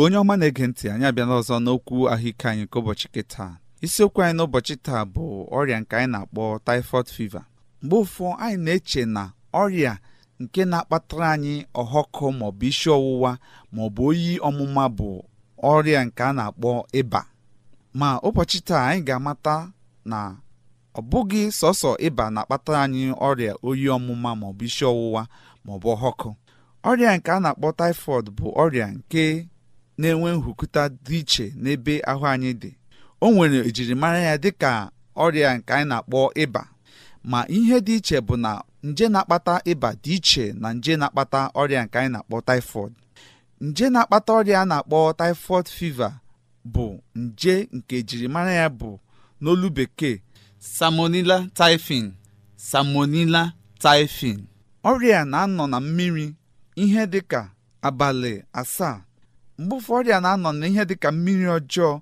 igbo onye ọma na-ege ntị anyị abịala ọzọ n'okwu ahụike anyị nke ụbọchị kịta isiokwu anyị n'ụbọchị taa bụ ọrịa nke anyị na-akpọ typhoid fiva mgbe ụfọ anyị na-eche na ọrịa nke na-akpatara anyị ọhọkụ maọbụ isi ọwụwa maọbụ oyi ọmụma bụ ọrịa nke a na-akpọ ịba ma ụbọchị taa anyị ga-amata na ọ bụghị sọsọ ịba na-akpatara anyị ọrịa oyi ọmụma maọbụ isi ọwụwa maọbụ ọhọkụ ọrịa nke a na-akpọ typhoid bụ ọrịa nke na-enwe nhụkụta dị iche n'ebe ahụ anyị dị o nwere ejirimara ya dịka ọrịa nke anyị na-akpọ ịba ma ihe dị iche bụ na nje na-akpata ịba dị iche na nje na-akpata ọrịa nke anyị na-akpọ typhoid nje na-akpata ọrịa a na-akpọ tifod fiva bụ nje nke ejirimara ya bụ n'olu bekee samonila taifin. samonila tifin ọrịa na-anọ na mmiri ihe dịka abalị asaa mgbe ụfọdụ a na-anọ n'ihe dị ka mmiri ọjọọ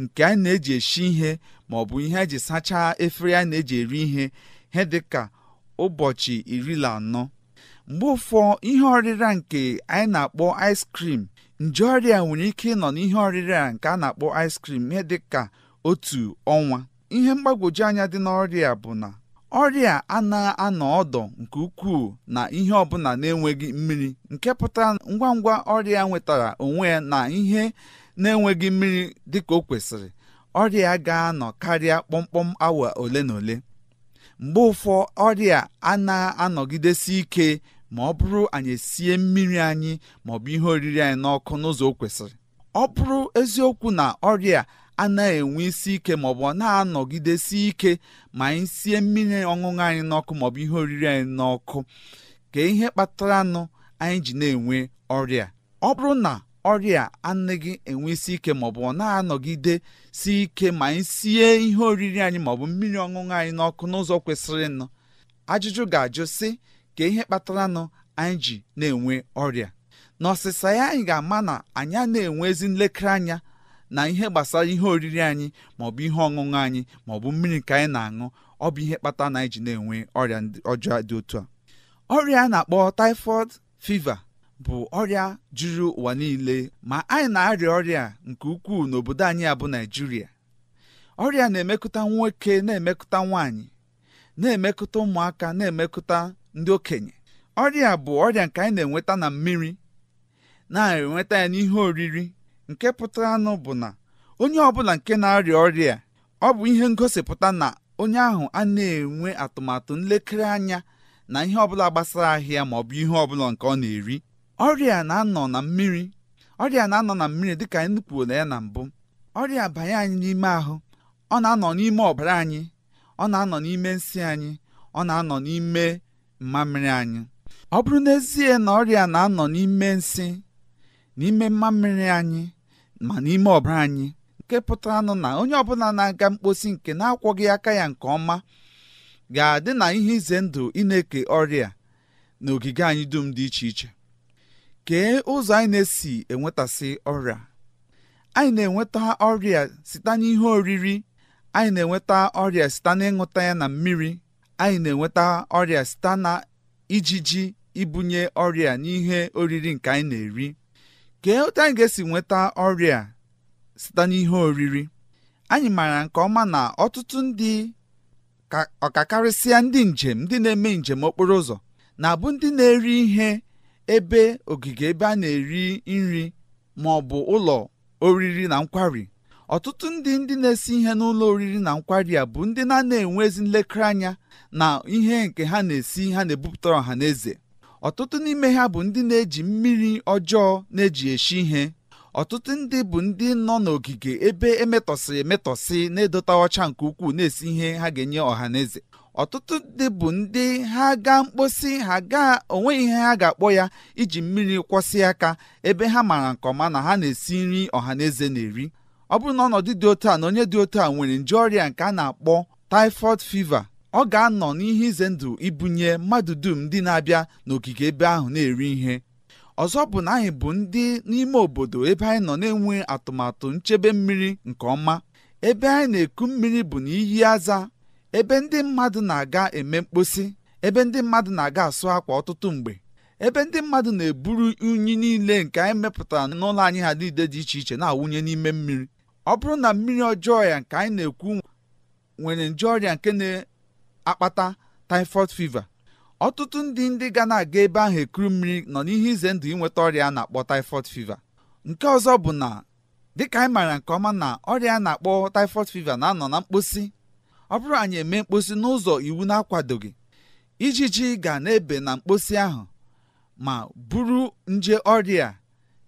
nke a na-eji esi ihe ma ọ bụ ihe eji sachaa efere a na-eji eri ihe ihe dị ka ụbọchị iri na anọ mgbe ụfọ ihe ọrịra nke anyị na-akpọ ice cream nje ọrịa nwere ike ịnọ n'ihe ọrịra nke a na-akpọ ice cream ihe dị ka otu ọnwa ihe mgbagwoju anya dị n'ọrịa bụ na ọrịa a na-anọ ọdụ nke ukwuu na ihe ọbụla na-enweghị mmiri nke pụtara ngwa ngwa ọrịa nwetara onwe ya na ihe na-enweghị mmiri dịka o kwesịrị ọrịa ga-anọ karịa kpọmkpọm awa ole na ole mgbe ụfọ ọrịa a na-anọgidesi ike ma ọ bụrụ anyị esie mmiri anyị ma bụ ihe oriri anyị n'ọkụ n'ụzọ o kwesịrị ọ bụrụ eziokwu na ọrịa anaghị enwe isi ike maọbụ ọ na-anọgidesi ike ma anyị sie mmiri ọṅụṅụ anyị n'ọkụ maọbụ ihe oriri anyị n'ọkụ ka ihe kpatara nụ anyị ji na-enwe ọrịa ọ bụrụ na ọrịa anaghị enwe isi ike maọbụ ọ na-anọgide si ike ma anyị sie ihe oriri anyị maọbụ mmiri ọṅụṅụ anyị n'ọkụ n'ụzọ kwesịrịnụ ajụjụ ga-ajụ sị ka ihe kpatara nụ anyị ji na-enwe ọrịa n'ọsịsa ya anyị ga-ama na anyị na-enwe ezi nlekere anya na ihe gbasara ihe oriri anyị maọbụ ihe ọṅụṅụ anyị maọbụ mmiri nke anyị na-aṅụ ọ bụ ihe kpata na anyị ji na-enwe ọrịa ọjọọ dị otu a ọrịa a na-akpọ typhoid fiva bụ ọrịa juru ụwa niile ma anyị na-arịa ọrịa nke ukwuu n'obodo anyị a bụ Naịjirịa ọrịa na-emekụta nwoke na-emekụta nwaanyị na-emekụta ụmụaka na-emekụta ndị okenye ọrịa bụ ọrịa nke anyị na-enweta na mmiri na-enweta ya n'ihe oriri nke pụtara nụ bụ na onye ọbụla nke na-arịa ọrịa ọ bụ ihe ngosipụta na onye ahụ a na-enwe atụmatụ nlekere anya na ihe ọbụla gbasara ahịa ma ọ bụ ihe ọbụla nke ọ na-eri ọrịa na-anọ na mmiri ọrịa na-anọ na mmiri dị anyị kwuola ya na mbụ ọrịa banye anyị n'ime ahụ ọ na-anọ n'ime ọbara anyị ọ na-anọ n'ime nsị anyị ọ na-anọ n'ime mmamịrị anyị ọ bụrụ n'ezie na ọrịa na-anọ n'ime nsị n'ime mmamịrị anyị ma n'ime ọbara anyị nke pụtaranụ na onye ọbụla na-aga mkposi nke na-akwọghị aka ya nke ọma ga-adị na ihe ize ndụ ị na-eke ọrịa na ogige anyị dum dị iche iche kee ụzọ anyị na-esi enwetasị ọrịa anyị na-enweta ọrịa site n'ihe oriri anyị na-enweta ọrịa site n'ịṅụta ya na mmiri anyị na-enweta ọrịa site na ijiji ibunye ọrịa n'ihe oriri nke anyị na-eri kee otu anyị ga-esi nweta ọrịa site n'ihe oriri anyị maara nke ọma na ọtụtụ ndị ọkakarịsịa ndị njem ndị na-eme njem okporo ụzọ na-abụ ndị na-eri ihe ebe ogige ebe a na-eri nri ma ọ bụ ụlọ oriri na nkwari ọtụtụ ndị ndị na-esi ihe n'ụlọ oriri na nkwari a bụ ndị na-ana enwe ezi nlekere anya na ihe nke ha na-esi ha na-ebupụtara ọha na eze ọtụtụ n'ime ha bụ ndị na-eji mmiri ọjọọ na-eji eshi ihe ọtụtụ ndị bụ ndị nọ n'ogige ebe emetọsị emetọsị na-edota ọcha nke ukwuu na-esi ihe ha ga-enye ọha na eze ọtụtụ ndị bụ ndị ha gaa mkposi ha gaa onwe ihe ha ga-akpọ ya iji mmiri kwọsị aka ebe ha maara nke ọma na ha na-esi nri ọha na eze na-eri ọ bụrụ na ọnọdụ dị otu a na onye dị otu a nwere nje ọrịa nke a na-akpọ typhoid fiva. ọ ga-anọ n'ihe ize ndụ ibunye mmadụ dum ndị na-abịa n'ogige ebe ahụ na-eri ihe ọzọ bụ na anyị bụ ndị n'ime obodo ebe anyị nọ na-enwe atụmatụ nchebe mmiri nke ọma ebe anyị na-eku mmiri bụ na iyi aza ebe ndị mmadụ na-aga eme mkposi ebe ndị mmadụ na-aga asụ akwa ọtụtụ mgbe ebe ndị mmadụ na-eburu unyi niile nke anyị mepụtara n'ụlọ anyị ha niile dị iche iche na-awụnye n'ime mmiri ọ bụrụ na mmiri ọjọọ ya nke anyị na-ekwu nwere nje ọrịa nke akpata typhoid fever ọtụtụ ndị ndị ga na-aga ebe ahụ ekuru mmiri nọ n'ihe ize ndụ ịnweta ọrịa a na-akpọ typhoid fever nke ọzọ bụ na dịka anyị maara nke ọma na ọrịa a na-akpọ typhoid fever na-anọ na mkposi ọ bụrụ anyị eme mkposi n'ụzọ iwu na-akwadoghị ijiji ga na-ebe na mkposi ahụ ma buru nje ọrịa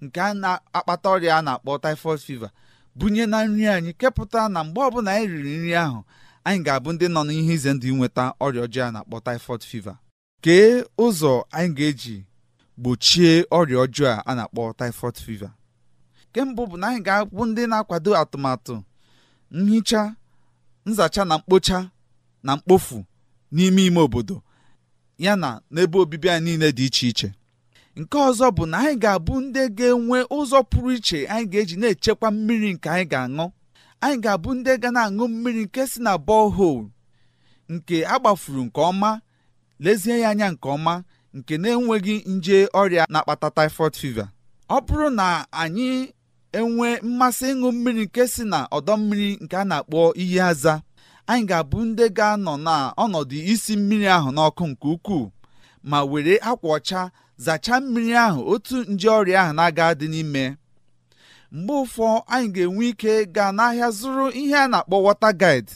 nke a na-akpata ọrịa a na-akpọ typhoid fever bunye na nri anyị kepụta na mgbe ọbụla anyị riri nri ahụ anyị ga-abụ ndị nọ n'ihe ize ndụ inweta ọrịa ọjọọ a na-akpọ typhoid fever kee ụzọ anyị ga-eji gbochie ọrịa ọjọọ a na-akpọ typhoid fever nke mbụ bụ na anyị ga-abụ ndị na-akwado atụmatụ nhicha nzacha na mkpocha na mkpofu n'ime ime obodo ya na n'ebe obibi anyị niile dị iche iche nke ọzọ bụ na anyị ga-abụ ndị ga-enwe ụzọ pụrụ iche anyị ga-eji na-echekwa mmiri nke anyị ga-aṅụ anyị ga-abụ ndị ga na-aṅụ mmiri nke si na borehole nke agbafuru nke ọma lezie ya anya nke ọma nke na-enweghị nje ọrịa na-akpata typhoid fever ọ bụrụ na anyị enwee mmasị ịṅụ mmiri nke si na ọdọ mmiri nke a na-akpọ iyi aza anyị ga-abụ ndị ga-anọ na ọnọdụ isi mmiri ahụ n'ọkụ nke ukwuu ma were akwa ọcha zachaa mmiri ahụ otu nje ọrịa ahụ na-aga dị n'ime mgbe ụfọ anyị ga-enwe ike gaa n'ahịa zụrụ ihe a na-akpọ wọta gaid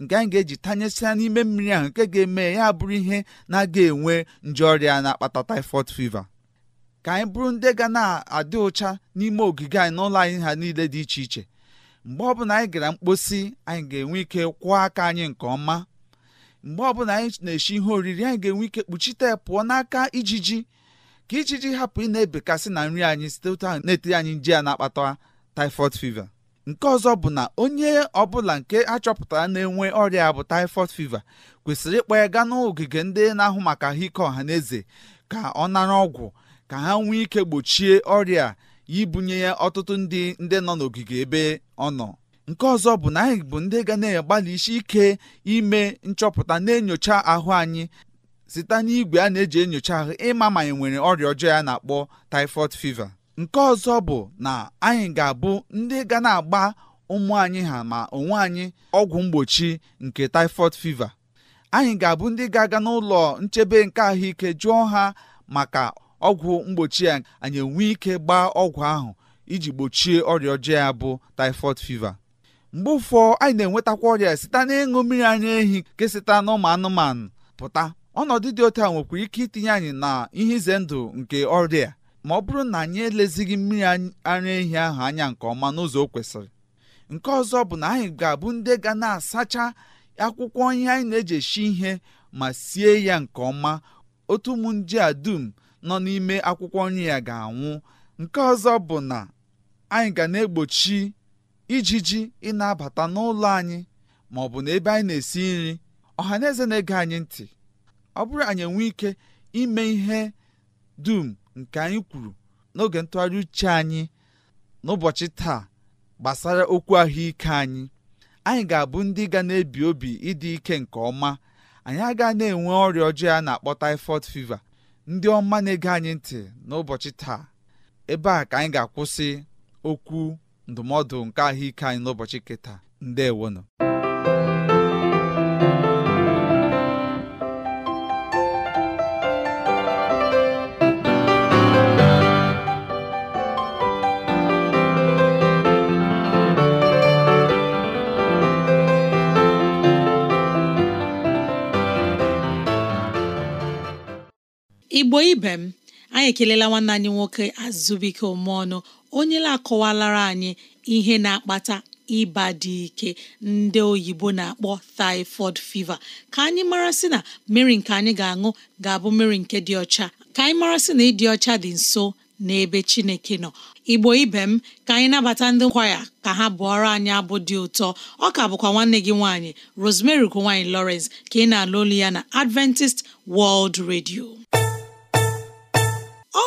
nke anyị ga-eji tanyesịa n'ime mmiri ahụ nke ga-eme ya bụrụ ihe na-aga enwe nje ọrịa na-akpata typhoid fever ka anyị bụrụ ndị ga na-adị ụcha n'ime ogige anyị n'ụlọ anyị ha niile dị iche iche mgbe ọbụla anyị gara mkposi anyị ga-enwe ike kwụọ aka anyị nke ọma mgbe ọbụla anyị na-eshi ihe oriri anyị ga-enwe ike kpuchite pụọ n'aka ijiji ka ji hapụ ị na-ebekasị na nri anyị site otu ahụ na anyị nje ya na-akpata tifod fiva. nke ọzọ bụ na onye ọbụla nke achọpụtara na-enwe ọrịa bụ tifod fiva kwesịrị ịkpọ ya gaa n'ogige ndị na-ahụ maka ahụike ọha na eze ka ọ nara ọgwụ ka ha nwee ike gbochie ọrịa ibunye ya ọtụtụ ndị ndị nọ n'ogige ebe ọ nọ nke ọzọ bụ na anyị bụ ndị ga na-agbalị isi ike ime nchọpụta na-enyocha ahụ anyị site n'igwe a na-eji enyocha ahụ ịma ma anyị nwere ọrịa ọjọọ ya na-akpọ typhoid fever nke ọzọ bụ na anyị ga-abụ ndị ga na-agba ụmụ anyị ha ma onwe anyị ọgwụ mgbochi nke typhoid fever anyị ga-abụ ndị ga-aga n'ụlọ nchebe nke ahụike jụọ ha maka ọgwụ mgbochi ya anyị enwe ike gbaa ọgwụ ahụ iji gbochie ọrịa ọjọọ ya bụ typhoid fever mgbe ụfọ anyị na-enwetakwa ọrịa site n'ịṅụ mmiri anya ehi nke site n'ụmụ anụmanụ pụta ọnọdụ dị otu a nwekwara ike itinye anyị na ihe ize ndụ nke ọrịa ma ọ bụrụ na anyị elezighị mmiri ara ehi ahụ anya nke ọma n'ụzọ o kwesịrị nke ọzọ bụ na anyị ga-abụ ndị ga na-asacha akwụkwọ ihe anyị na-eji esi ihe ma sie ya nke ọma otu ụmụ nje a dum nọ n'ime akwụkwọ nri ya ga-anwụ nke ọzọ bụ na anyị ga na-egbochi ijiji ị na-abata n'ụlọ anyị ma ọ bụ na ebe anyị na-esi nri ọha na eze na-ege anyị ntị ọ bụrụ anyị enwee ike ime ihe dum nke anyị kwuru n'oge ntụgharị uche anyị n'ụbọchị taa gbasara okwu ahụike anyị anyị ga-abụ ndị ga na-ebi obi ịdị ike nke ọma anyị aga na-enwe ọrịa ọjọọ a na-akpọ typhoid fever ndị ọma na-ege anyị ntị n'ụbọchị taa ebe a ka anyị ga-akwụsị okwu ndụmọdụ nke ahụike anyị n'ụbọchị kịta ewono igbo ibe m anyị ekelela nwanne anyị nwoke azụbike ọnụ onye na-akọwalara anyị ihe na-akpata ịba dị ike ndị oyibo na-akpọ typhoid fiva, ka anyị mara sị na mmiri nke anyị ga-aṅụ ga-abụ mmiri nke dị ọcha ka anyị mara sị na ịdị ọcha dị nso n'ebe Chineke nọ igbo ibe m ka anyị nabata ndị nkwaya ka ha bụọrọ anyị abụ dị ụtọ ọ ka bụkwa nwanne gị nwaanyị Rosemary ugo nwaanyị Lawrence ka ị na-alụ olu ya na Adventist World Radio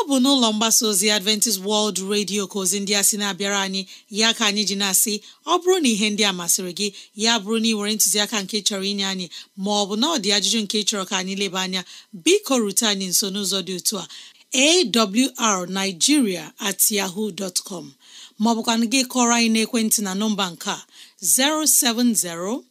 bụ n'ụlọ mgbasa ozi adventist world radio ka ozi ndị a sị na-abịara anyị ya ka anyị ji na-asị ọ bụrụ na ihe ndị a masịrị gị ya bụrụ na ị were ntụziaka nke chọrọ inye anyị ma ọ bụ na ajụjụ nke chọrọ ka anyị leba anya biko rute anyị nso n'ụzọ dị otu a awrnigeria at yahoo dot com maọbụkwa gị kọrọ anyị n'ekwentị na nọmba nke a 07063637224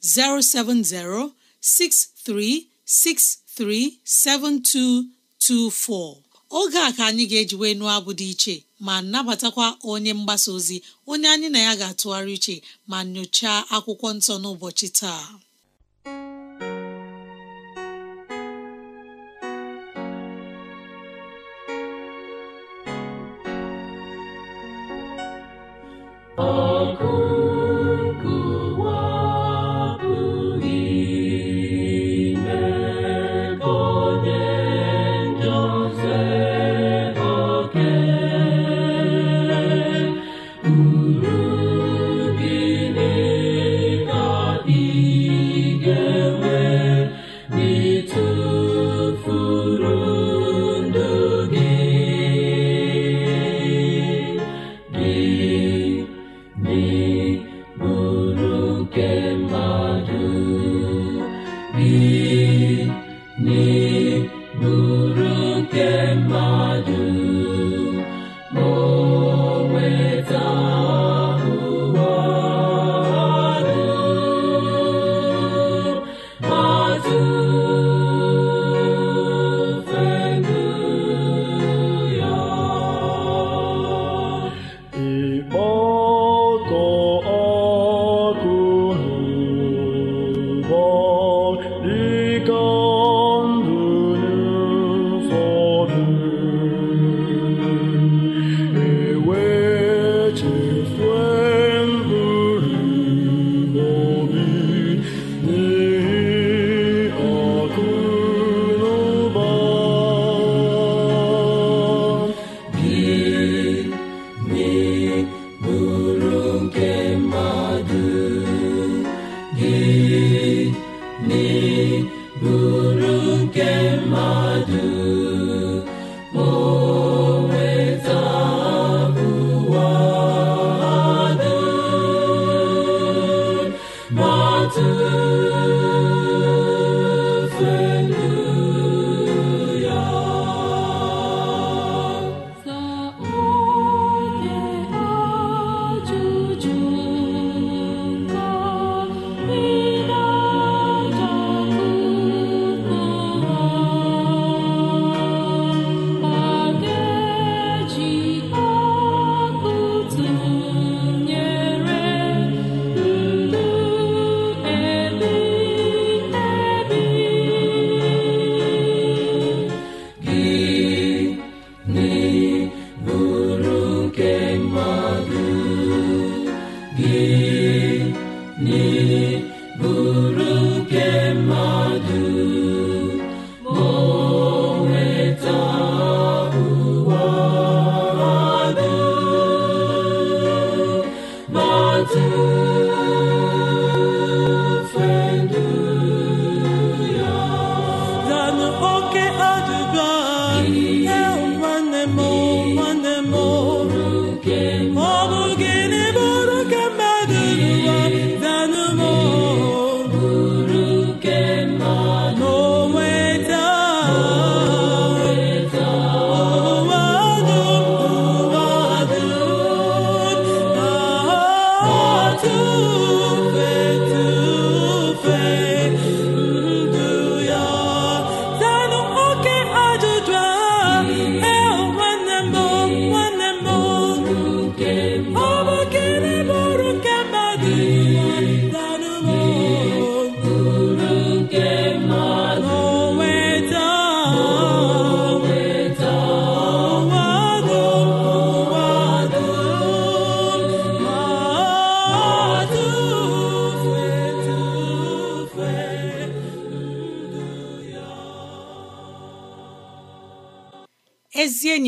070 63637224 oge a ka anyị ga-eji wee nụọ abụ dị iche ma nabatakwa onye mgbasa ozi onye anyị na ya ga-atụgharị iche ma nyochaa akwụkwọ nsọ n'ụbọchị taa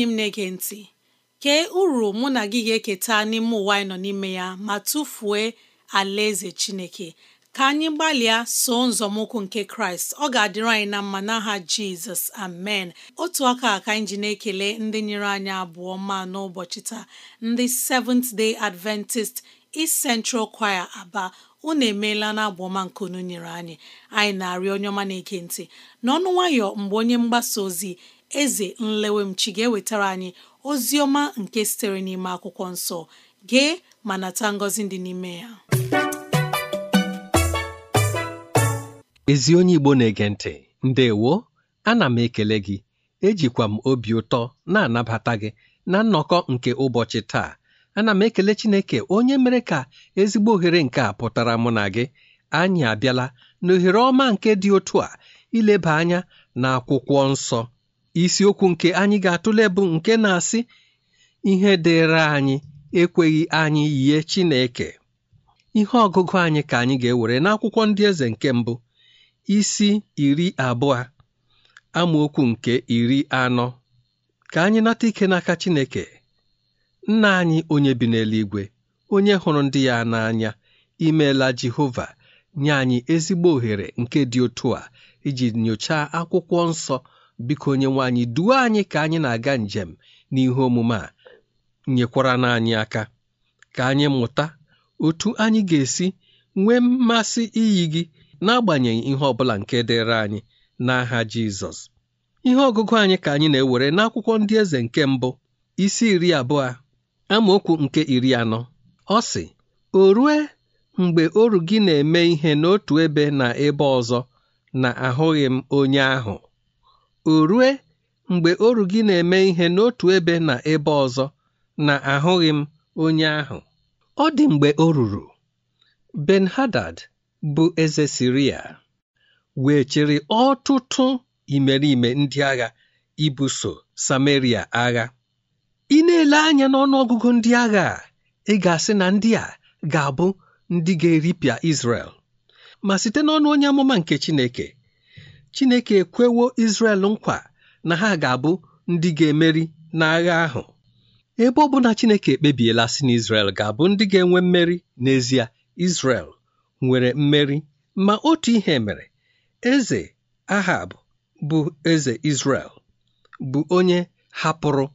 enyi m na-ege ntị kee uru mụ na gị ga-eketa n'ime ụwa anyị nọ n'ime ya ma tụfuo alaeze Chineke ka anyị gbalịa so nzọmụkwụ nke Kraịst ọ ga-adịrị anyị na mma n'aha Jizọs amen otu aka ka anyị ji na-ekele ndị nyere anyị abụọ mma n'ụbọchị taa ndị Seventh Day Adventist East Central Choir Aba unu emeela na abụọma nke unu nyere anyị anyị na-arịọ onye ọma na-ege ntị n'ọnụ nwayọ mgbe onye mgbasa ozi eze nlewemchi ga-ewetara anyị ozi ọma nke sitere n'ime akwụkwọ nsọ gee ma nata ngọzi dị n'ime ya ezi onye Igbo na-ege ntị ndewo ana m ekele gị ejikwa m obi ụtọ na-anabata gị na nnọkọ nke ụbọchị taa ana m ekele Chineke onye mere ka ezigbo ohere nke a pụtara mụ na gị anyị abịala n'ohere ọma nke dị otu a ileba anya na akwụkwọ nsọ isiokwu nke anyị ga-atụle bụ nke na-asị ihe dịịrị anyị ekweghị anyị yie Chineke ihe ọgụgụ anyị ka anyị ga-ewere n'akwụkwọ ndị eze nke mbụ isi iri abụọ amaokwu nke iri anọ ka anyị nata ike n'aka Chineke nna anyị onye bi n'eluigwe onye hụrụ ndị ya n'anya imeela Jehova nye anyị ezigbo ohere nke dị otu a iji nyochaa akwụkwọ nsọ biko onyenwe anyị duo anyị ka anyị na-aga njem n'ihe omume a nyekwara n'anyị aka ka anyị mụta otu anyị ga-esi nwee mmasị iyi gị n'agbanyeghị ihe ọ bụla nke dịịrị anyị n'aha Jizọs ihe ọgụgụ anyị ka anyị na-ewere n'akwụkwọ ndị eze nke mbụ isi iri abụọ amaokwu nke iri anọ ọ sị o rue mgbe oru gị na-eme ihe n'otu ebe na ebe ọzọ na ahụghị m onye ahụ o rue mgbe oru gị na-eme ihe n'otu ebe na ebe ọzọ na ahụghị m onye ahụ ọ dị mgbe o ruru ben hadad bụ eze siria wee chịrị ọtụtụ imerime ndị agha ibuso samaria agha ị na-ele anya n'ọnụọgụgụ ndị agha a ị ga-asị na ndị a ga-abụ ndị ga-eripịa Izrel ma site n'ọnụ onye amụma nke Chineke Chineke ekwewo Izrel nkwa na ha ga-abụ ndị ga-emeri n'agha ahụ ebe ọ Chineke ekpebiela si na ga-abụ ndị ga-enwe mmeri n'ezie Izrel nwere mmeri ma otu ihe mere eze Ahab bụ eze Izrel bụ onye hapụrụ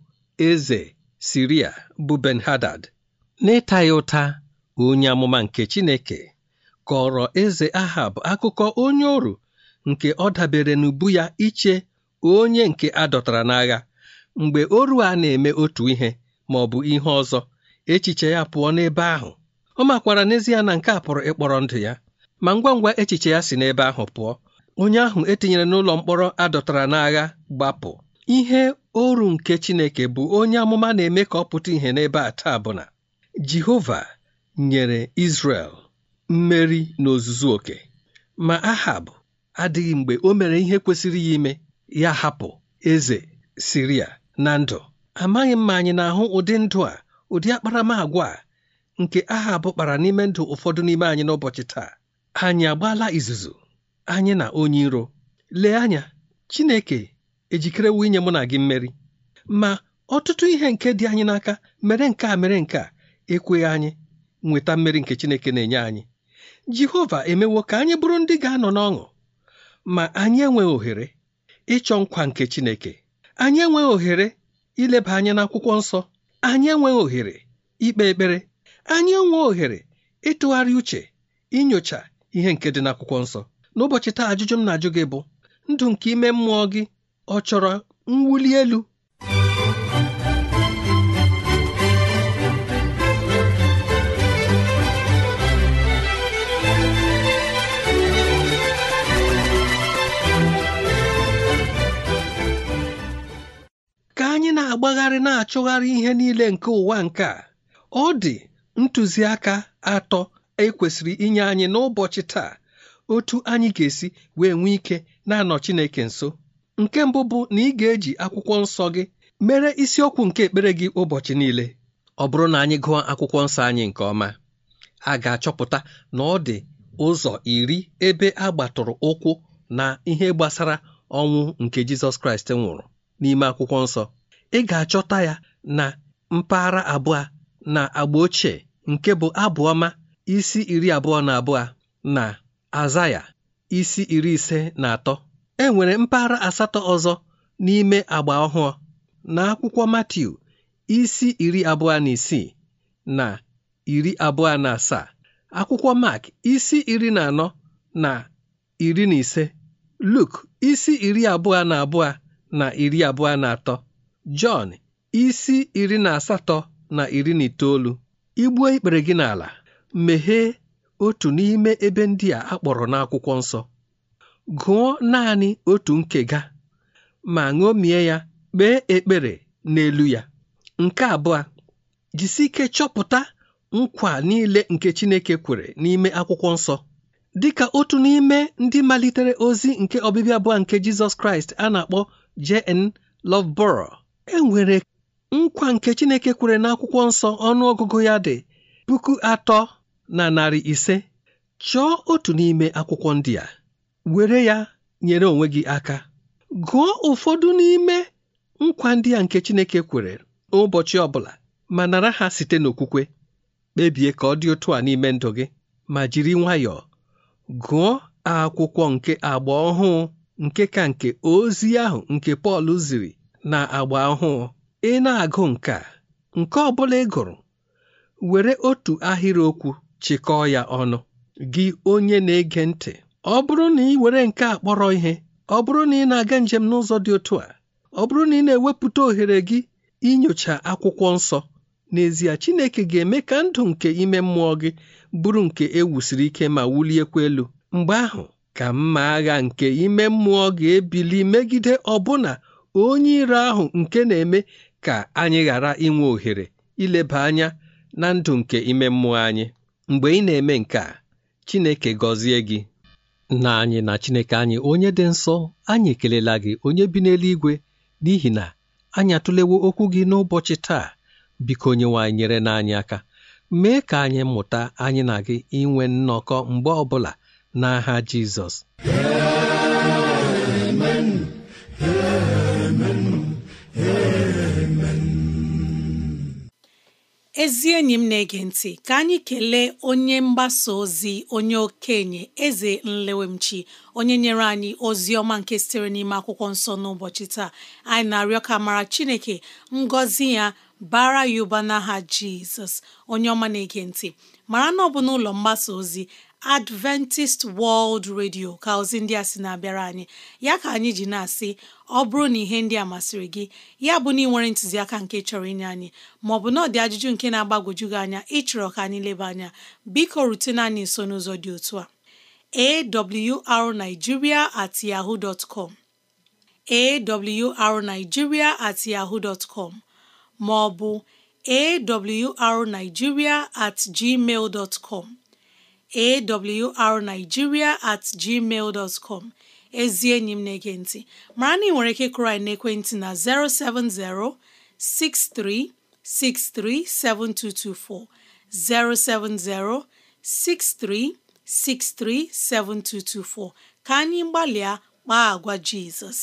eze Siria bụ Ben-Hadad n'ịta ya ụta onye amụma nke Chineke kọrọ eze Ahab akụkọ onye ọrụ nke ọ dabere n'ubu ya iche onye nke a dọtara n'agha mgbe oru a na-eme otu ihe ma ọ bụ ihe ọzọ echiche ya pụọ n'ebe ahụ ọ makwara n'ezie na nke a pụrụ ịkpọrọ ndụ ya ma ngwa ngwa echiche ya si n'ebe ahụ pụọ onye ahụ etinyere n'ụlọ mkpọrọ adọtara n'agha gbapụ ihe oru nke Chineke bụ onye amụma na-eme ka ọ pụta ihe n'ebe a taa bụ na Jehova nyere Izrel mmeri n'ozuzu oke ma Ahab adịghị mgbe o mere ihe kwesịrị ya ime ya hapụ eze siria na ndụ amaghị m ma anyị na-ahụ ụdị ndụ a ụdị akparamagwa a nke aha bụkpara n'ime ndụ ụfọdụ n'ime anyị n'ụbọchị taa anyị agbaala izuzu anyị na onye iro lee anya Chineke ejikerewo inye mụ na gị mmeri ma ọtụtụ ihe nke dị anyị n'aka mere nke a mere nke a ekweghị anyị nweta mmeri nke Chineke na-enye anyị Jehova emewo ka anyị bụrụ ndị ga-anọ n'ọṅụ ma anyị enweghị ohere ịchọ nkwa nke Chineke anyị enweghị ohere ileba anya n'akwụkwọ nsọ anyị enweghị ohere ikpe ekpere anyị enweghị ohere ịtụgharị uche inyocha ihe nke dị n'akwụkwọ nsọ n'ụbọchị taa ajụjụ m na-ajụ gị bụ ndụ nke ime mmụọ gị ọ chọrọ mwuli elu na-agbagharị na-achụgharị ihe niile nke ụwa nke a ọ dị ntụziaka atọ ekwesịrị inye anyị n'ụbọchị taa otu anyị ga-esi wee nwee ike na-anọ Chineke nso nke mbụ bụ na ị ga-eji akwụkwọ nsọ gị mere isiokwu nke ekpere gị ụbọchị niile ọ bụrụ na anyị gụọ akwụkwọ nsọ anyị nke ọma a ga-achọpụta na ọ dị ụzọ iri ebe a gbatụrụ ụkwụ na ihe gbasara ọnwụ nke Jizọs Kraịst nwụrụ n'ime akwụkwọ nsọ ị ga-achọta ya na mpaghara abụọ na agba ochie nke bụ abụọma isi iri abụọ na abụọ na aza ya isi iri ise na atọ Enwere mpaghara asatọ ọzọ n'ime agba ọhụụ na akwụkwọ Matiu isi iri abụọ na isii na iri abụọ na asaa akwụkwọ Mark isi iri na anọ na iri na ise Luk isi iri abụọ na abụọ na iri abụọ na atọ Jọn isi iri na asatọ na iri na itoolu igbuo ikpere gị n'ala meghee otu n'ime ebe ndị a akpọrọ n'akwụkwọ nsọ gụọ naanị otu nke nkega ma ṅomie ya kpee ekpere n'elu ya nke abụọ jisi ike chọpụta nkwa niile nke Chineke kwere n'ime akwụkwọ nsọ dịka otu n'ime ndị malitere ozi nke ọbịbịa abụọ nke Jizọs Kraịst a na-akpọ J.N. Loveborough e nwere nkwa nke Chineke kwere n'akwụkwọ nsọ ọnụ ọgụgụ ya dị puku atọ na narị ise chọọ otu n'ime akwụkwọ ndị a were ya nyere onwe gị aka gụọ ụfọdụ n'ime nkwa ndị a nke Chineke kwere ụbọchị ọbụla ma nara ha site n'okwukwe kpebie ka ọ dị otu a n'ime ndụ gị ma jiri nwayọọ gụọ akwụkwọ nke agba ọhụụ nke ka nke ozi ahụ nke Pọl ziri na agba ọhụụ ị na-agụ nke a nke ọ bụla ị gụrụ were otu ahịrịokwu chịkọọ ya ọnụ gị onye na-ege ntị ọ bụrụ na ị were nke a kpọrọ ihe ọ bụrụ na ị na-aga njem n'ụzọ dị otu a ọ bụrụ na ị na-ewepụta ohere gị inyocha akwụkwọ nsọ n'ezie Chineke ga-eme ka ndụ nke ime mmụọ gị bụrụ nke ewusiri ike ma wuliekwa elu mgbe ahụ ka mma agha nke ime mmụọ ga-ebili megide ọbụna onye iro ahụ nke na-eme ka anyị ghara inwe ohere ileba anya na ndụ nke ime mmụọ anyị mgbe ị na-eme nke a Chineke gọzie gị na anyị na Chineke anyị onye dị nsọ anyị ekelela gị onye bi n'eluigwe n'ihi na anyị atụlewo okwu gị n'ụbọchị taa biko onyenwe nyere na aka mee ka anyị mụta anyị na gị inwe nnọkọ mgbe ọbụla n'aha Jizọs ezi enyi m na-ege ntị ka anyị kelee onye mgbasa ozi onye okenye eze nlewemchi onye nyere anyị ozi ọma nke sitere n'ime akwụkwọ nsọ n'ụbọchị taa anyị na-arịọ ka mara chineke ngọzi ya bara ya ụba n'aha jizọs onye ọma na-ege ntị mara na ọ bụ n'ụlọ mgbasa ozi Adventist World Radio ka ozi ndị a sị na-abịara anyị ya ka anyị ji na-asị ọ bụrụ na ihe ndị a masịrị gị ya bụ na ị nwere ntụziaka nke chọrọ inye anyị maọbụ na ọ dị ajụjụ nke na-agbagwoju gị anya ịchọrọ ka anyị leba anya biko rutena anyị nso n'ụzọ dị otu a awrnigeria at yahoo dot com awrnigeria at yahoo dot com maọbụ awrnigeria at gmail dot com awrnigeria@gmail.com ezi enyi m na-ege ntị mara na ị nwere ike kụrụ anyị n'ekwentị na 070 6363 7224 070 6363 7224 ka anyị gbalịa kpaa agwa Jizọs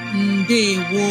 ndewo